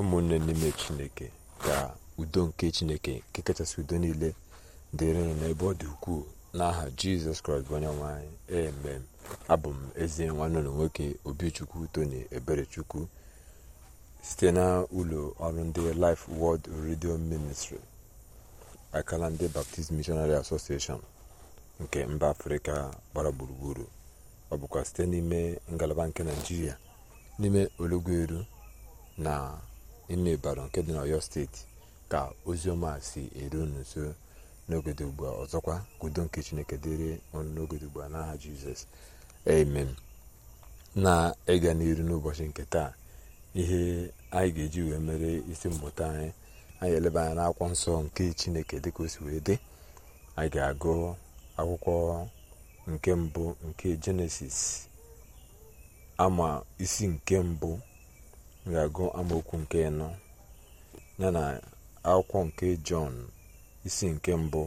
ụmụnne n'ime chineke ga udo nke chineke nke kachasị udo niile dịrị n'ebe ọ dị ukwuu n'aha jizọs kraịst bụ onye nwanyị emem abụ m ezi nwanne ụlọ nwoke obichukwu tony eberechukwu site na ụlọ ọrụ ndị life world radio ministry akala ndị baptist missionary association nke mba afrịka gbara gburugburu ọ bụkwa site n'ime ngalaba nke naijiria n'ime olugweru na n'ime baro nke dị n'ọyọ steeti ka oziọma si eru unu nso n'ogede ugbu a ọzọkwa ka nke chineke dịrị ọnụ n'ogede ugbu a n'aha jizọs amen na-ịga n'iru n'ụbọchị nke taa ihe anyị ga-eji wee mere isi mmụta anyị anyị eleba anya n'akwụkwọ nsọ nke chineke dịka o si wee dị anyị ga-agụ akwụkwọ nke mbụ nke jenesis ama isi nke mbụ ga-agụ amaokwu nke ịnọ ya na akwụkwọ nke jọn isi nke mbụ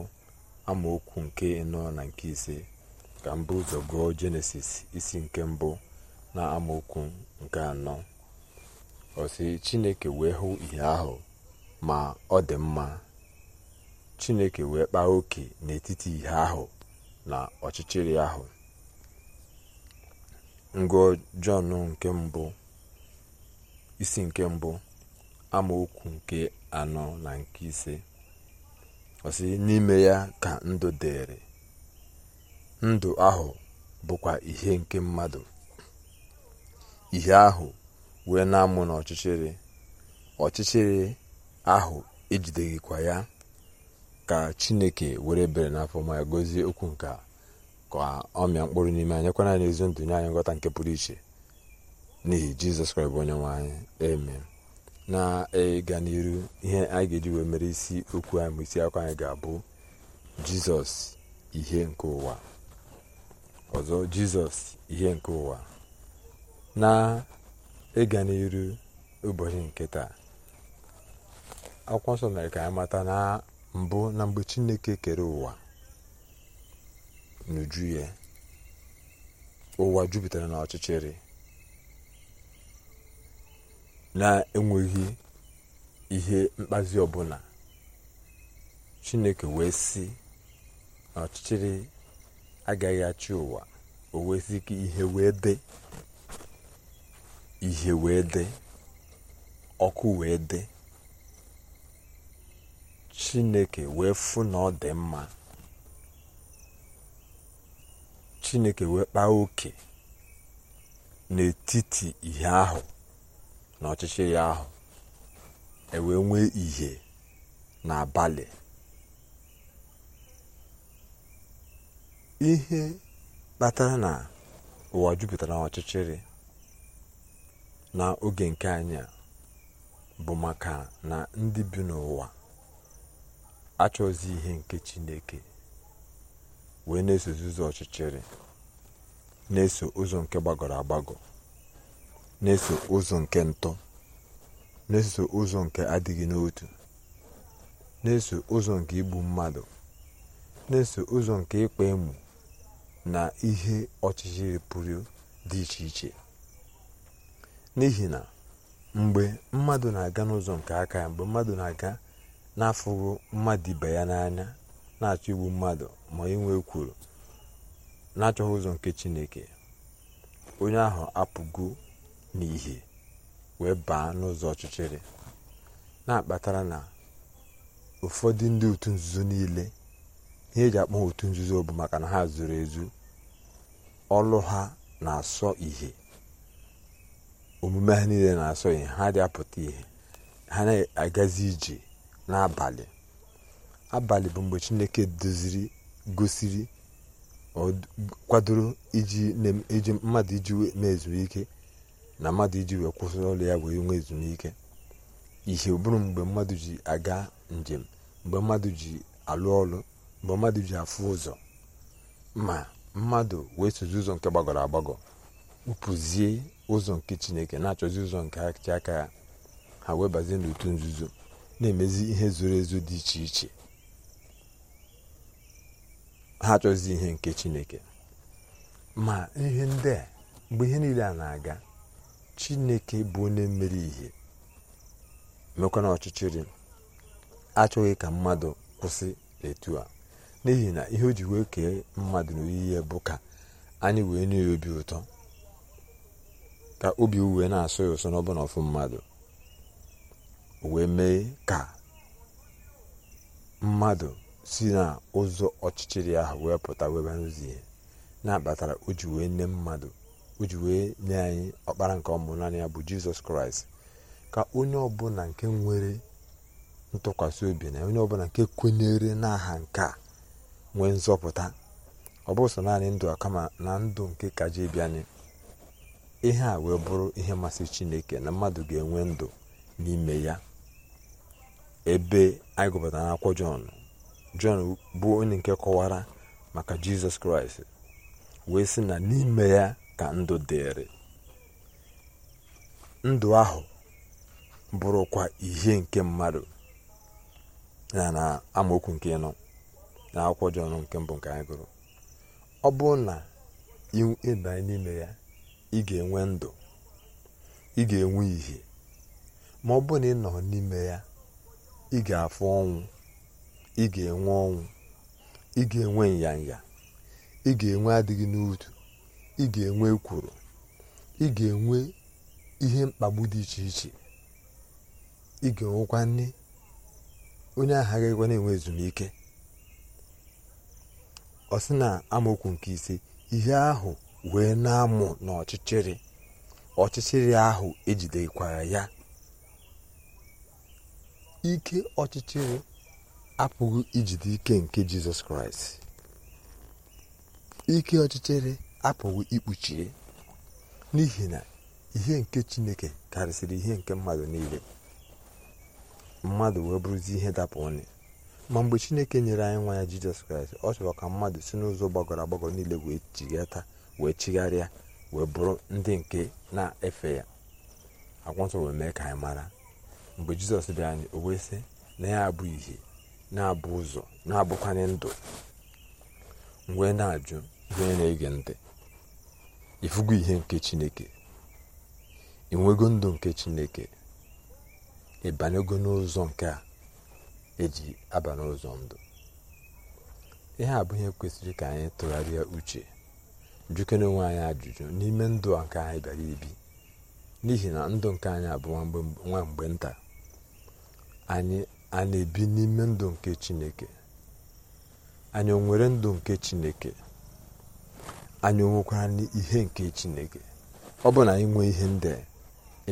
amaokwu nke ịnọ na nke ise ka mbụ ụzọ gụọ jenesis isi nke mbụ na amaokwu nke anọ osi chineke wee hụ ihe ahụ ma ọ dị mma chineke wee kpaa oke n'etiti ihe ahụ na ọchịchịrị ahụ ngụọ jọn nke mbụ isi nke mbụ amaokwu nke anọ na nke ise ọsị n'ime ya ka ndụ dịrị ndụ ahụ bụkwa ihe nke mmadụ ihe ahụ wee na-amụ n'ọchịchịrị ọchịchịrị ahụ ejideghịkwa ya ka chineke were bere n'afọ ma ya gozie okwu nke ka ọ mịa mkpụrụ n'ime anyị kwana n'ezi ndụ nye anyị nghọta nke pụrụ iche n'ihi jizọs kraịst bụ onye nwanyị eme na-ịga e, n'iru ihe anyị ga-eji wee mere isi okwu anyị ma isi akwa anyị ga-abụ jizọs ihe nke ụwa ọzọ jizọs ihe nke ụwa na ịga e n'iru ụbọchị nke taa akwụkwọ nsọ mere ka anyị mata na mbụ na mgbe chineke kere ụwa n'uju ya ụwa jupụtara na ọchịchịrị na-enweghị ihe mkpazi ọbụla chineke wee sị na ọchịchịrị agaghị achị ụwa o wee sị ka ihe wee dị ihe wee dị ọkụ wee dị chineke wee fụ na ọ dị mma chineke wee kpaa oke n'etiti ihe ahụ na ọchịchịrị ahụ ewee nwee ìhè n'abalị ihe kpatara na ụwa jupụtara n'ọchịchịrị na oge nke anyị bụ maka na ndị bi n'ụwa achọzi ihe nke chineke wee na-eso ụzọ ọchịchịrị na-eso ụzọ nke gbagọrọ agbagọ na-eso ụzọ nke ntọ na-eso ụzọ nke adịghị n'otu na-eso ụzọ nke igbu mmadụ na-eso ụzọ nke ịkpa emu na ihe ọchịchịrị pụrụ dị iche iche n'ihi na mgbe mmadụ na-aga n'ụzọ nke aka ya mgbe mmadụ na-aga na-afụghị mmadụ ibe ya n'anya na-achọ igbu mmadụ ma inwe kwuru na-achọghị ụzọ nke chineke onye ahụ apụgo n'ihe wee baa n'ụzọ ọchịchịrị na-akpatara na ụfọdụ ndị otu nzuzo niile ihe eji akpọ otu nzuzo bụ maka na ha zuru ezu ọlụ ha na-asọ ihe omume ha niile na-asọ ihe ha dị apụta ihe ha na-agazi ije n'abalị abalị bụ mgbe chineke doziri gosiri kwadoro iji mmadụ iji mee ezumike na mmadụ iji wee kwụsị ọrụ ya wee nwee ezumike ihe bụrụ mgbe mmadụ ji aga njem mgbe mmadụ ji alụ ọrụ mgbe mmadụ ji afụ ụzọ ma mmadụ wee sozi ụzọ nke gbagọrọ agbagọ kpụpụzie ụzọ nke chineke na-achọzi ụzọ nke achị aka ya ha wee bazie n'otu nzuzo na-emezi ihe zoro ezo dị iche iche ha achọzi ihe nke chineke ma ihe ndị a mgbe ihe niile a na-aga chineke bụ onye mmeri ihe mekwana ọchịchịrị achọghị ka mmadụ kwụsị etu a n'ihi na ihe o ji wee kee mmadụ n'oyiyi bụ ka anyị wee nye ya obi ụtọ ka obi uwe na asụ ya ụsọ n'ọbụna ọfụ mmadụ wee mee ka mmadụ si na ụzọ ọchịchịrị ahụ wee pụta wee baa n'ụzọ ihe na-akpatara o ji wee nne mmadụ o ji wee nye anyị ọkpara nke ọmụ naanị ya bụ jizọs kraịst ka onye ọbụla nke nwere ntụkwasị obi na onye ọbụla nke kwenyere n'aha nke a nwee nzọpụta ọ bụ naanị ndụ a kama na ndụ nke kaji bịa ihe a wee bụrụ ihe masị chineke na mmadụ ga-enwe ndụ n'ime ya ebe anyị gụpụtara akwụkwọ jọn jọn bụ onye nke kọwara maka jizọs kraịst wee sị na n'ime ya ka ndụ dịrị ndụ ahụ bụrụkwa ihe nke mmadụ ya na amaokwu nke ịnọ, na akwụkwọ jọn nke mbụ nke anyị gụrụ ọ bụrụ na ịbanye n'ime ya ị ga-enwe ndụ ị ga-enwe ihe ma ọ bụrụ na ị nọ n'ime ya ị ga-afụ ọnwụ ị ga-enwe ọnwụ ị ga-enwe nyanya ị ga-enwe adịghị n'otu. ị ga-enwe kwuru, ị ga-enwe ihe mkpagbu dị iche iche ị ga-enwekwa nne onye ahụ agaghịkwa na-enwe ezumike ọ sị na amaokwu nke ise ihe ahụ wee na-amụ n'ọchịchịrị ọchịchịrị ahụ ejidekwara ya ike ọchịchịrị apụghị ijide ike nke jizọs kraịst ike ọchịchịrị apụghị ikpuchie n'ihi na ihe nke chineke karịsịrị ihe nke mmadụ niile mmadụ wee bụrụzi ihe dapụ ọnụ ma mgbe chineke nyere anyị nwa ya jizọs kraịst ọ chọrọ ka mmadụ si n'ụzọ gbagọrọ agbagọ niile wee chighata wee chigharịa wee bụrụ ndị nke na-efe ya akwụnsọ wee mee ka anyị mara mgbe jizọs bịa anyị o wee sị na ya abụ ihe na-abụ ụzọ na-abụkwanye ndụ mgbe na-ajụ ihe na-ege ntị ịfụgo ihe nke chineke ịnwego ndụ nke chineke ịbanyego n'ụzọ nke a eji aba n'ụzọ ndụ ihe abụghị bụ kwesịrị ka anyị tụgharịa uche na onwe anyị ajụjụ n'ime ndụ a nke anyị bịara ibi n'ihi na ndụ nke anyị abụ nwa nta anyị a ebi n'ime ndụ nke chineke anyị o nwere ndụ nke chineke anyị onwekwara n'ihe nke chineke ọ bụ na anyị nwee ihe ndị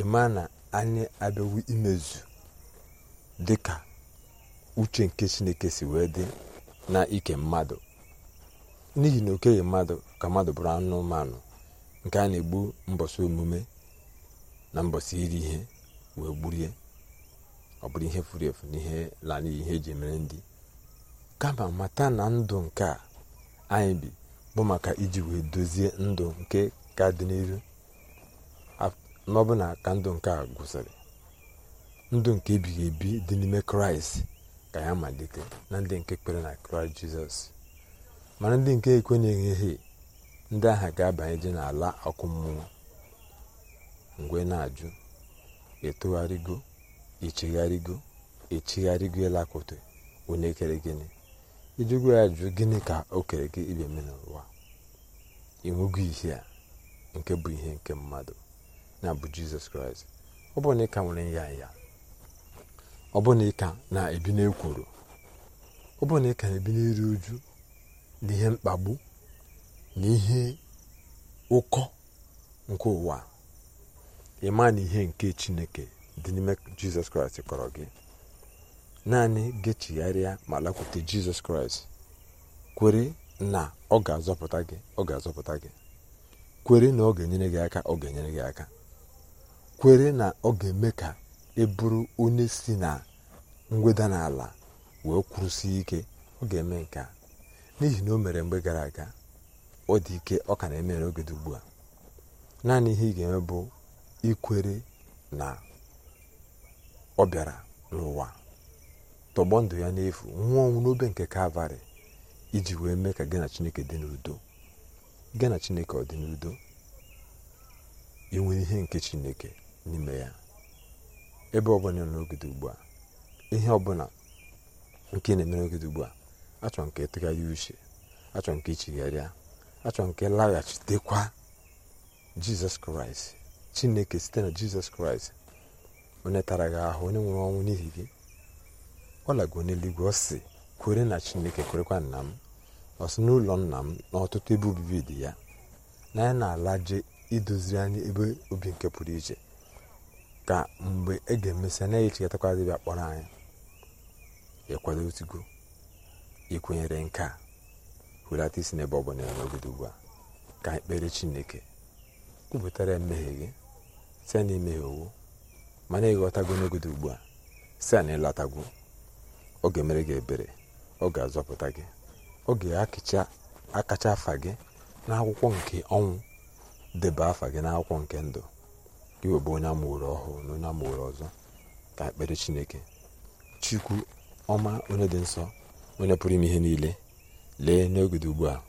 ịma na anyị abịawo imezu dịka uche nke chineke si wee dị na ike mmadụ n'ihi na okenye mmadụ ka mmadụ bụrụ anụmanụ nke a na-egbu mbọsị omume na mbọsị iri ihe wee gburie ọ bụrụ ihe furu efu na ihe ihe eji mere ndị kama mata na ndụ nke a anyị bi bụ maka iji wee dozie ndụ nke ka dị n'iru n'ọbụna ka ndụ nke a gwụsịrị ndụ nke ebighị ebi dị n'ime kraịst ka ya malite na ndị nke kpere na kraịst jizọs mana ndị nke ekwe na ekwenyeghị ndị ahụ ga abanye dị n'ala ọkụ mmụọ mgbe na-ajụ etogharịgo echegharịgo echegharịgo ịlakwute onye kere gịnị ijegwa ya jụ gịnị ka o kere gị ibe eme n'ụwa ịnwego ihe a nke bụ ihe nke mmadụ na bụ jizọs kraịst ọ bụrụ na ị nwere ya ya ọ bụrụ na ị ka na-ebi n'ekworo ọ bụrụ na ị ka na-ebi n'iri uju na ihe mkpagbu na ihe ụkọ nke ụwa ịma na ihe nke chineke dị n'ime jizọs kraịst kọrọ gị naanị gechigharịa ma lakwute jizọs kraịst kwere na ọ ga-azọpụta gị ọ ga-azọpụta gị kwere na ọ ga-enyere gị aka ọ ga-enyere gị aka kwere na ọ ga-eme ka ị e bụrụ onye si na ngweda n'ala wee kwụrụsie ike ọ ga-eme nke a n'ihi na o mere mgbe gara aga ọ dị ike ọ ka na-eme n'oge dị ugbu a naanị ihe ị ga-eme bụ ikwere na ọ bịara n'ụwa tọgbọ ndụ ya n'efu nwụọ ọnwụ n'obe nke kalvarị iji wee mee ka gị chineke dị n'udo gị chineke ọ dị n'udo inwere ihe nke chineke n'ime ya ebe ọbụla nọ n'ogede ugbu a ihe ọbụla nke na-eme n'ogede ugbu a achọ nke ịtụgharị uche achọ nke ichigharịa achọ nke laghachitekwa jizọs kraịst chineke site na jizọs kraịst onye tara gị ahụ onye nwere ọnwụ n'ihi gị ọ lago n'eluigwe ọ sị kwere na chineke kwerekwa nna m ọsị n'ụlọ nna m na ọtụtụ ebe obibi dị ya na ya na-ala je idoziri anyị ebe obi nke pụrụ iche ka mgbe e ga-emesịa na echekọtakwa dịbịa kpọrọ anyị ịkwado otigo ịkwenyere nke a hulata isi n'ebe ọ bụla n'ogide ugbu a ka anyị kpere chineke kwupụtara ya mmehie gị site na imehie owu mana ịghọtago n'ogide ugbu a si na ịlọtagwo ọ ga-emere gị ebere ọ ga-azọpụta gị ọ ga-akacha akacha afa gị n'akwụkwọ nke ọnwụ deba afa gị n'akwụkwọ nke ndụ gị onye amụrụ ọhụụ na onye amụrụ ọzọ ka ekpere chineke chukwu ọma onye dị nsọ onye pụrụ ime ihe niile lee n'ogede ugbu a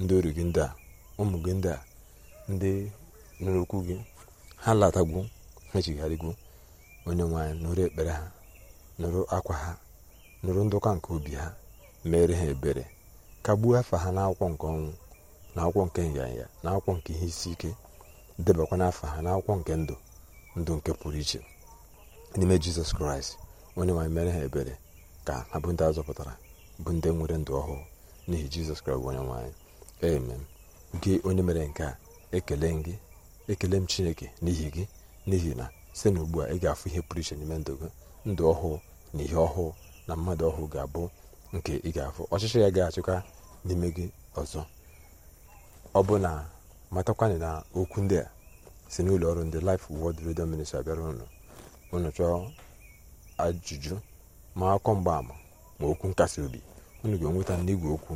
ndị oru gị ndị a ụmụ gị ndị a ndị nụrụ gị ha latagwu ha chigharịgwu onye nwaanyị nụrụ ekpere ha nụrụ akwa ha nụrụ ndụka nke obi ha mere ha ebere kagbuo afa ha n'akwụkwọ nke ọnwụ na akwụkwọ nke nyanya na akwụkwọ nke ihe isi ike debakwa n'afọ ha n'akwụkwọ nke ndụ ndụ nke pụrụ iche n'ime jizọs kraịst onye nwanyị mere ha ebere ka ha bụ ndị a zọpụtara bụ ndị nwere ndụ ọhụụ n'ihi jizọs kraịst onye nwaanyị emem gị onye mere nke a ekele gị ekele m chineke n'ihi gị n'ihi na site na ugbu a ị ga-afụ ihe pụrụ iche n'ime ndụ gị ndụ ọhụụ na ihe ọhụụ na mmadụ ọhụụ ga-abụ nke ị ga-afụ ọchịchị ya ga-achịkwa n'ime gị ọzọ ọ bụ na matakwana na okwu ndị a si n'ụlọ ọrụ ndị Life Word redio Ministry abịara ụnụ unu chọọ ajụjụ ma akọ mgbaama ma okwu nkasi obi unu ga-enweta igwe okwu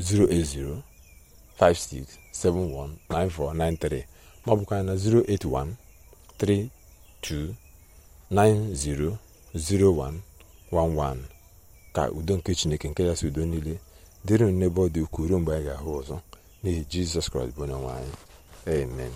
08056719493 ma ọ bụkwa na 081329001 11 ka udo nke chineke nke yasị udo niile dịrị n'ebe ọ dị ukwuu mgbe anyị ga-ahụ ọzọ n'ihi jizọs kraịst bụ onye anyị amen